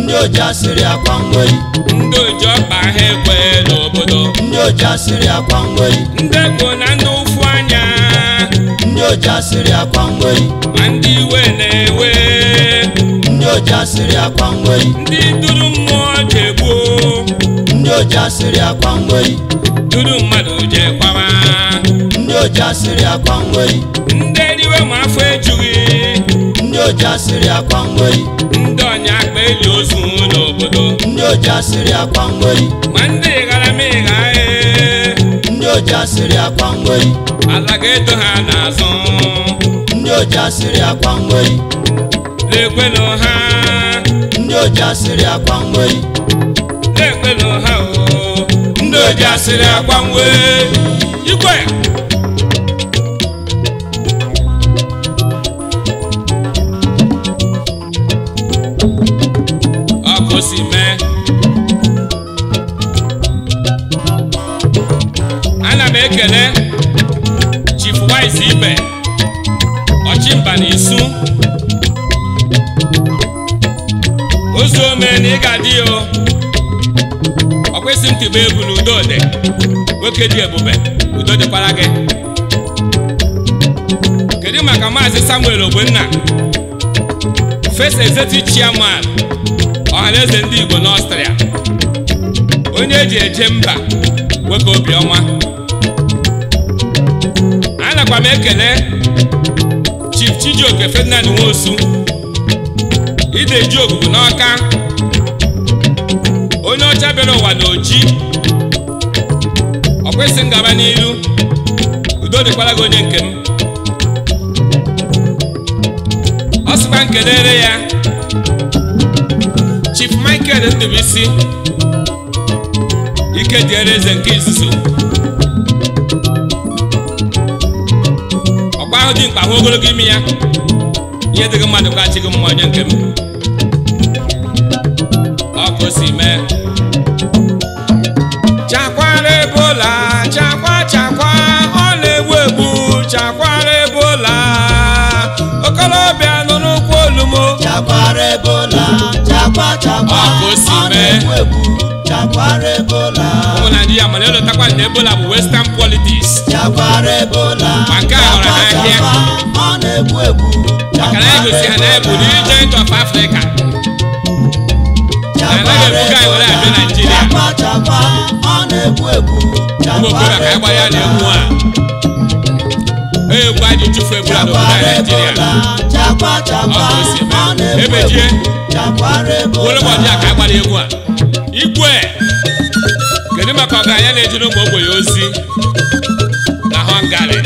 ndị oji asịrị akwa nweri ndị oji ọkpa ha ekwe n'obodo ndị oji asịrị akwa nweri ndị egbo na ndị ụfụ anya ndị oji asịrị akwa nweri ma ndị iwe na-ewe ndị oji asịrị akwa nweri ndị duru mmụọ ji egbuo ndị oji asịrị akwa nweri tụrụ mmadụ jee kpama. ndị oji asịrị akwa nwei ndị eriwe ma afọ ejughị ndị oji asịrị akwa nwei ndị ọnya akpa eli ozu n'obodo ndị oji asịrị akwa nwei ma ndị ịghara ma ịghaghị e. ndị oji asịrị akwa nwei ala ga-edo ha n'azụ ndị oji asịrị akwa nwei na ha ndị oji asịrị akwa nwei na ha eji asịrị akwa nwe ikwe ọ ana m ekele chief ibe ọchịmba na isu ome na ị ga-adị itiba egwu na udo dị nwoke dị ebube udo dịkwara gị kedu maka maazị samuel ogbenna first executive chairman ọhaneze ndị igbo n'ọstrịa onye eji eje mba nwoke obiọma nakwa m ekele chief chijioke ferdinand nwosu ide ji ogugu n'ọka onye ọcha bịara ụwa na oji ọ kwesịrị ngaba n'iru udo dịkwara gị onye nke m ọ sịkwa na-ere ya Chief Michael Ndubuisi ike dịere eze nke izuzo ọkwa ahụ dị mkpa hụ ogologo ime ya ihe dịghị mmadụ ka achịghị mma onye nke m ọ si mee ọ chakwara ebola ndị ya mana elotakwa na ebola bụ western politics chakwara ebola ma nke a họrọ ha ọ na-egbu egbu maka na ha na ebu the giant of africa anaghị ebuga anyị were abịa naijiria ụmụ okorobịa ka anyị ya e na egbu a egwu anyị chụfu egwu naijiria ọ bụ osimiri ebejie ka anyị gbara egwu a igwe kedu maka anya na-ejere ụmụ ogbenye ozi na họngarị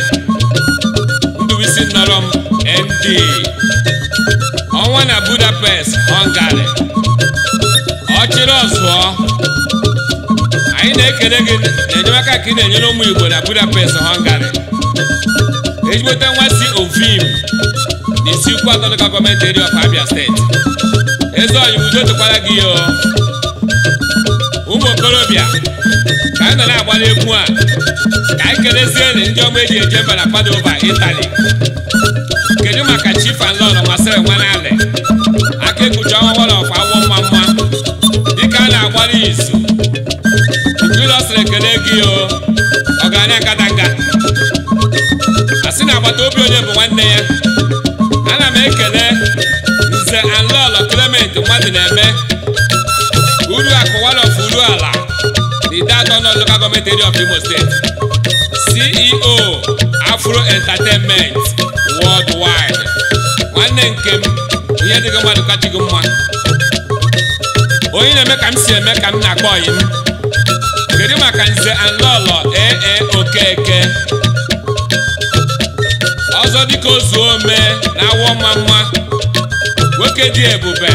nduwisi nọrọ m md ọnwa na budapest họngarị ọchịrị ọzụọ anyị na-ekele gị na enyemaka ka ị na-enyere ụmụ igbo na budapest họngarị ejiweta nwa si ovim na isi ukwu atọ local gọọmenti eri abia steeti eze udo gị ya ụmụ okorobịa ka anyị nọ na-agbara egwu a ka anyị nri ndị ọma eji eje mba na ụba Itali kedu maka Chief and m'asịrị nwa alị aka ekuchi ọnwa of awọ mma mma dịka a na-agbara izu ụlọ sịrị ekele gị o ọgaranya nkata nka a sị na agbata obi onye bụ nwanne ya entertainment worldwide nwanne nke m ihe dịgo mmadụ kacha mma onye na-eme ka m si eme ka m na-akpọ ọyị m kedu maka nze anlọlọ ee okeke ọzọ dịka ozu ome na awọ mma mma nwoke dị ebube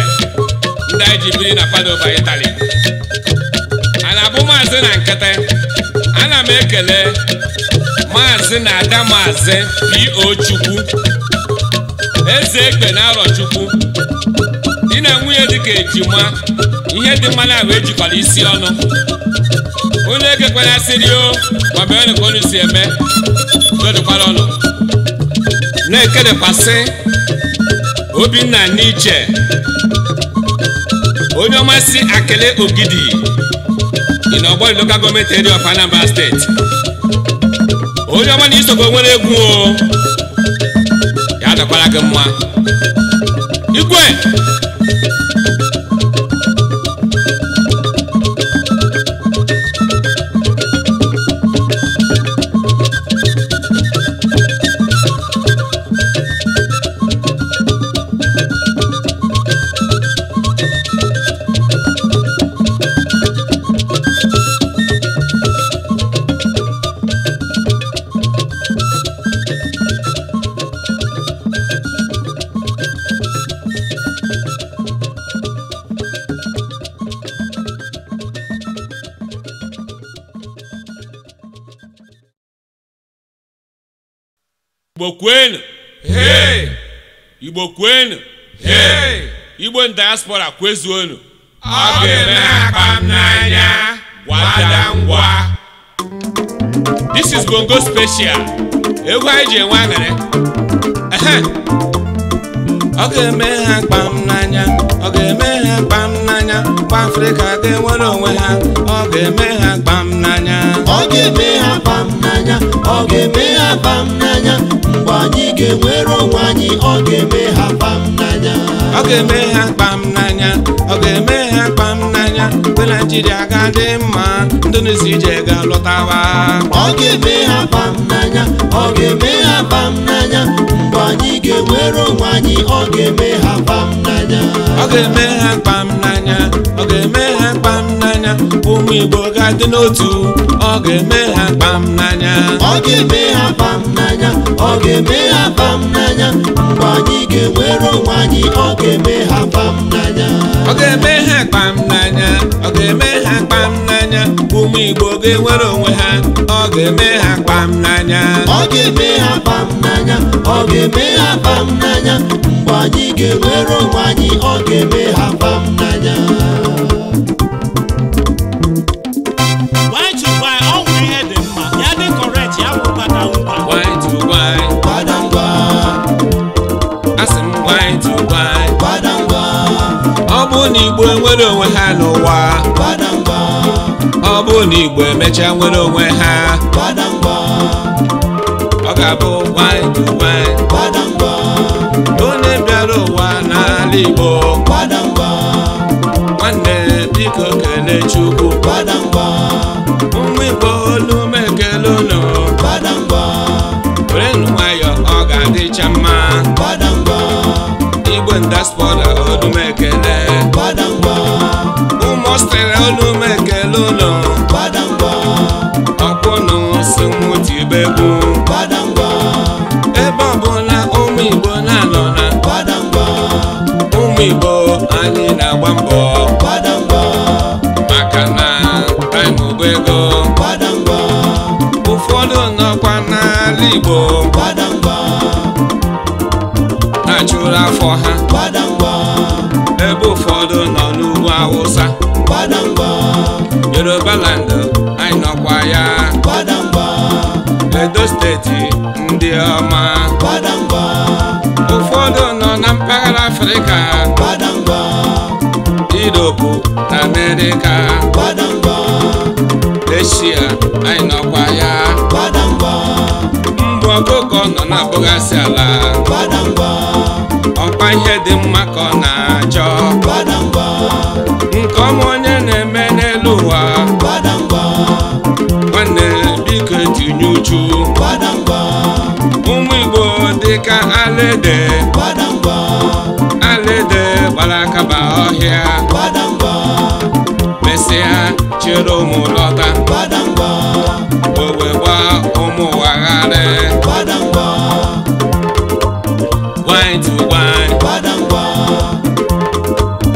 ndị anyị ji biri na Padova Itali a na-abụ maazị na nkịtị ana m ekele maazị na ada maazị po chukwu eze ekpe na arọchukwu di na nwunye dịka ejima ihe dị mmanụ na ahụ ejikwara isi ọnụ onye ekekwanasịrị o ma bee onye ka si eme dodokwara ọnụ na-ekedekwasị obinna n'iche onye ọmasị akele ogidi dị n'ọgbọ local gọọmenti eri of Anambra steeti onye ọma na isokwe nwere egwu o ya dọkwara gị mma igwe igbo kwenu igbo kwenu igbo diaspora kwezuonu ọ ga-eme ha n'anya gwada ngwa this is bongo special egwu anyị ji enwe aṅara ọ ga-eme ha akpa m ga-eme ha kpam n'anya kwa afrịka ga-enwere onwe ha ọ ga-eme ha kpam n'anya ọ ga-eme ha kpam n'anya ọ ga-eme ha kpam n'anya mgbe anyị ga-enwere onwe anyị ọ ga-eme ha kpam n'anya ọ ga-eme ha kpam n'anya ọ ga-eme ha kpam n'anya mgbe naijiria ga-adị mma ndị nụzi ije ga-alọtawa ọ ga-eme ha kpam n'anya ọ ga-eme ha bam n'anya mgbe anyị ga-enwere onwe anyị ọ ga-eme ha bam n'anya ọ ga-eme ha bam n'anya ọ ga-eme ha bam n'anya ụmụ Igbo ga-adị n'otu ọ ga-eme ha bam n'anya ọ ga-eme ha bam n'anya ọ ga-eme ha bam n'anya mgbe anyị ga-enwere onwe anyị ọ ga-eme ha bam n'anya ọ ga-eme ha bam n'anya ọ ga-eme ha bam n'anya n'anya ụmụ igbo ga-enwere onwe ha ọ ga-eme ha kpam n'anya ọ ga-eme ha kpam n'anya ọ ga-eme ha kpam n'anya mgbe anyị ga-enwere onwe anyị ọ ga-eme ha kpam n'anya ọ bụ na igbo enwere onwe ha n'ụwa ọ bụrụ na igbo emechaa nwere onwe ha ọ ga-abụ onye bịara ụwa n'ala igbo nwanne biko kele Chukwu nwa igbo olu igbo anyị na-agba mbọ maka na anyị mụbụ ego ụfọdụ nọkwa n'ala igbo na-achụrụ afọ ha ebe ụfọdụ nọ n'ugwu awụsa yoruba land edo steeti ndị ọma ụfọdụ nọ na mpaghara afrịka iropu na amerịka eshia anyị nọkwa ya mgbe ọkụkọ nọ na-abụghasị ala ọkwa ihe dị mma ka ọ na dịka alede alede gbara akaba ọhịa mesịa chere ụmụ lọta wee gba ụmụ wagharị gwanyị tu gwanyị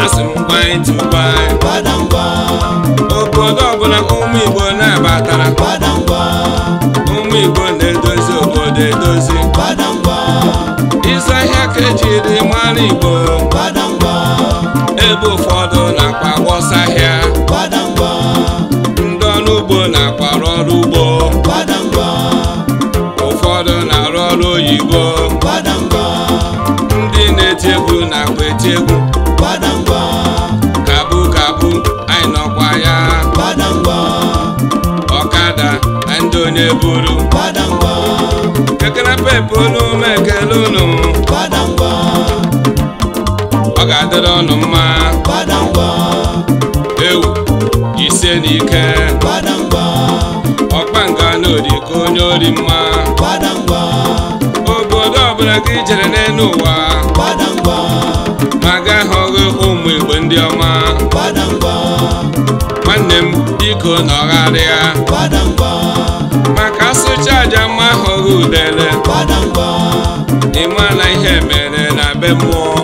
asị m gwanyị tu gwanyị obodo ọbụla ụmụ Igbo na-abatara ụmụ Igbo na-edozi obodo edozi ka ejiri mara Igbo ebe ụfọdụ na-akpa gbọsa ahịa ndị ọrụ ugbo na-akwara ọrụ ugbo ụfọdụ na-arụ ọrụ oyibo ndị na-eti egwu na-akpa eti egwu kabụ kabu anyị nọkwa ya ọkada ndị onye buru kekere dịrị ọnụ mma ewu ise n'ike na n'oriko onye ori mma obodo ọbụla gị jere n'elu ụwa ma gaghị ọghị ụmụ igbo ndị ọma nwanne m biko nọgharịa maka asụcha aja mma ahụghị udele ịma na ihe mere na be mmụọ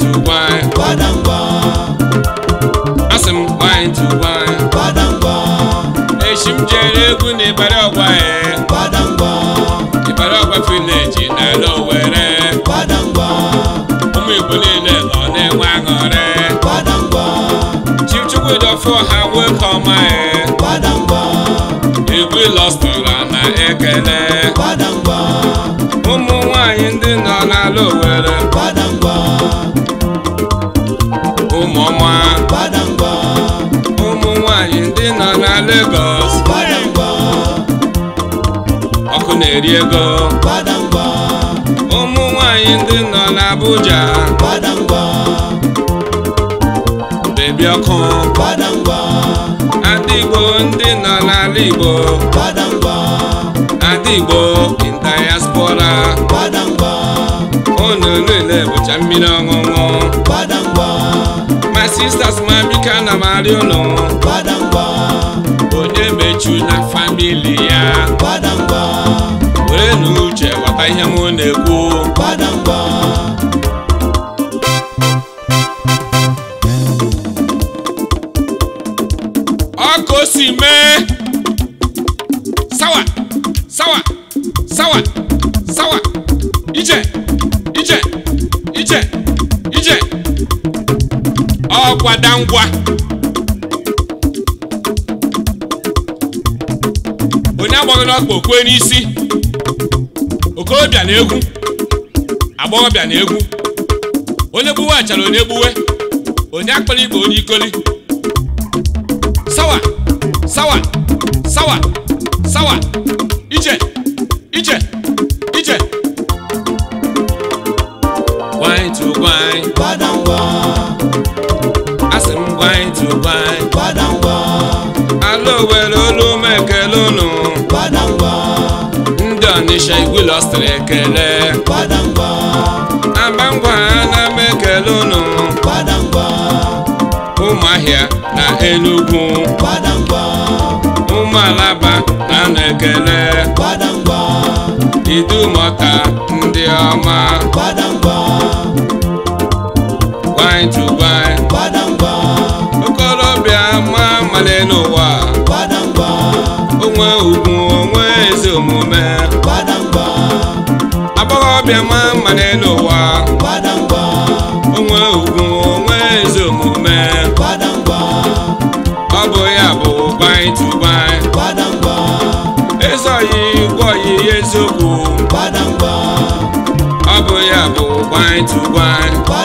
wine to wine gbadangba asị m wine to wine gbadangba echi m jere egwu na ịbara ọgwa ya e. gbadangba ịbara na vileji n'ala owere gbadangba ụmụ igbo niile nọ na-enwe aṅụrị gbadangba chimchukwu dọfụ ha wee ka ọma ya e. gbadangba egwu lọstọra na ekele gbadangba ụmụ nwaanyị ndị nọ n'ala were. gbadangba Badangwa ụmụọma ụmụ nwanyị ndị nọ na Lagos ọkụ na-eri ego Badangwa ụmụ nwanyị ndị nọ na Abuja Badangwa bebi ọkụ ndị nọ n'ala Igbo adigbo ndị Igbo in diaspora chamina ngongo badangwa my sisters my bika na mariolo badangwa onye mechu na familia. ya badangwa were n'uche ghọta ihe m badangwa n'ọkpa okwe n'isi okorobịa na egwu agbọghọbịa na egwu onye gbuwe achara onye gbuwe onye akpara igbo onye ikoli sawa sawa ọganicha igwilo sịrị ekele abangwa na mekele unu ụmụahịa na enugwu ụmụalaba na na-ekele idumọta ndị ọma gwanyị tụgwanyị okorobịa ma amale n'ụwa onwe ugwu onwe ezi omume ọbịama mma n'elu ụwa onwe ugwu onwe ezi omume ọ bụ ya bụ banyị tụbanyị ezoghị gwọghị eziokwu ọ bụ ya bụ banyị tụbanyị